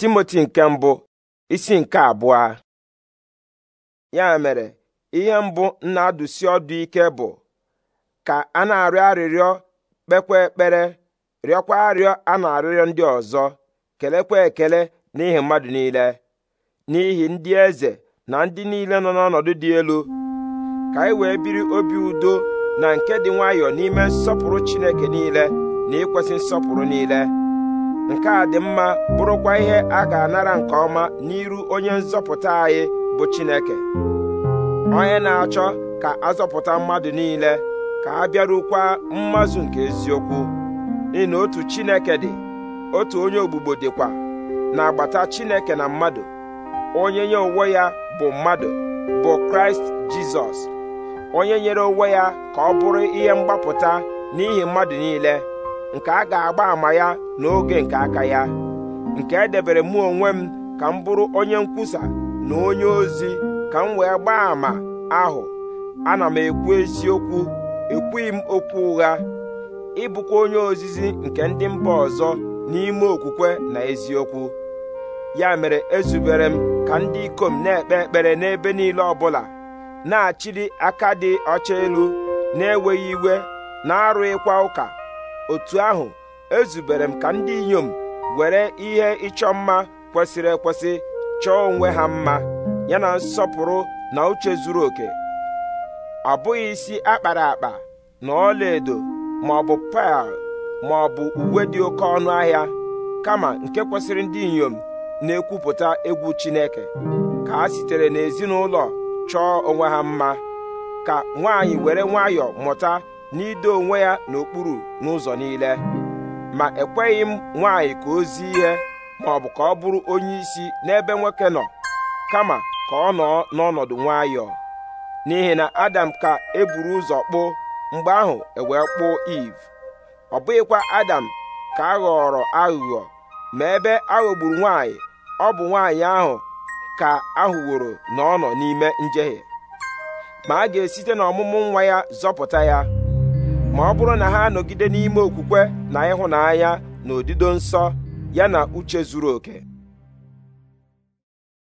timoti nke mbụ isi nke abụọ ya mere ihe mbụ na-adụsi ọdụ ike bụ ka a na-arịọ arịrịọ kpekwa ekpere rịọkwa arịọ a na-arịrịọ ndị ọzọ kelekwa ekele n'ihi mmadụ niile n'ihi ndị eze na ndị niile nọ n'ọnọdụ dị elu ka anyị wee biri obi udo na nke dị nwayọọ n'ime nsọpụrụ Chineke niile na ikwesị nsọpụrụ niile nke a dị mma bụrụkwa ihe a ga-anara nke ọma n'iru onye nzọpụta anyị bụ Chineke onye na-achọ ka azọpụta mmadụ niile ka a bịarukwa mmazụ nke eziokwu ịna na otu Chineke dị otu onye ogbugbo dịkwa na-agbata Chineke na mmadụ onye nye onwe ya bụ mmadụ bụ Kraịst Jizọs onye nyere onwe ya ka ọ bụrụ ihe mgbapụta n'ihi mmadụ niile nke a ga-agba ama ya n'oge nke aka ya nke edebere m onwe m ka m bụrụ onye nkwusa na onye ozi ka m wee gbaa àmà ahụ ana m ekwu eziokwu ekwughị m okwu ụgha ịbụkwa onye ozizi nke ndị mba ọzọ n'ime okwukwe na eziokwu ya mere ezubere m ka ndị ikom na-ekpe ekpere n'ebe niile ọbụla na achịrị aka dị ọcha elu na-enweghị iwe na-arụghịkwa ụka otu ahụ ezubere m ka ndị inyom were ihe ịchọ mma kwesịrị ekwesị chọọ onwe ha mma yana nsọpụrụ na uche zuru oke ọ bụghị isi akpara akpa na ọlaedo ma ọ bụ paa ma ọ bụ uwe dị oke ọnụ ahịa kama nke kwesịrị ndị inyom na-ekwupụta egwu Chineke ka ha sitere n'ezinụlọ chọọ onwe ha mma ka nwaanyị were nwayọọ mụta n'ido onwe ya n'okpuru n'ụzọ niile ma ekweghị m nwaanyị ka o zi ihe ma ọ bụ ka ọ bụrụ onye isi n'ebe nwoke nọ kama ka ọ nọ n'ọnọdụ nwayọọ n'ihi na adam ka eburu ụzọ kpụ mgbe ahụ ewee kpụ iv ọ bụghịkwa adam ka a ghọrọ aghụghọ ma ebe aghọgburu nwaanyị ọ bụ nwaanyị ahụ ka ahụworo na ọ nọ n'ime njehie ma a ga-esite n'ọmụmụ nwa ya zọpụta ya ma ọ bụrụ na ha anọgide n'ime okwukwe na ịhụnanya na odido nsọ ya na uche zuru oke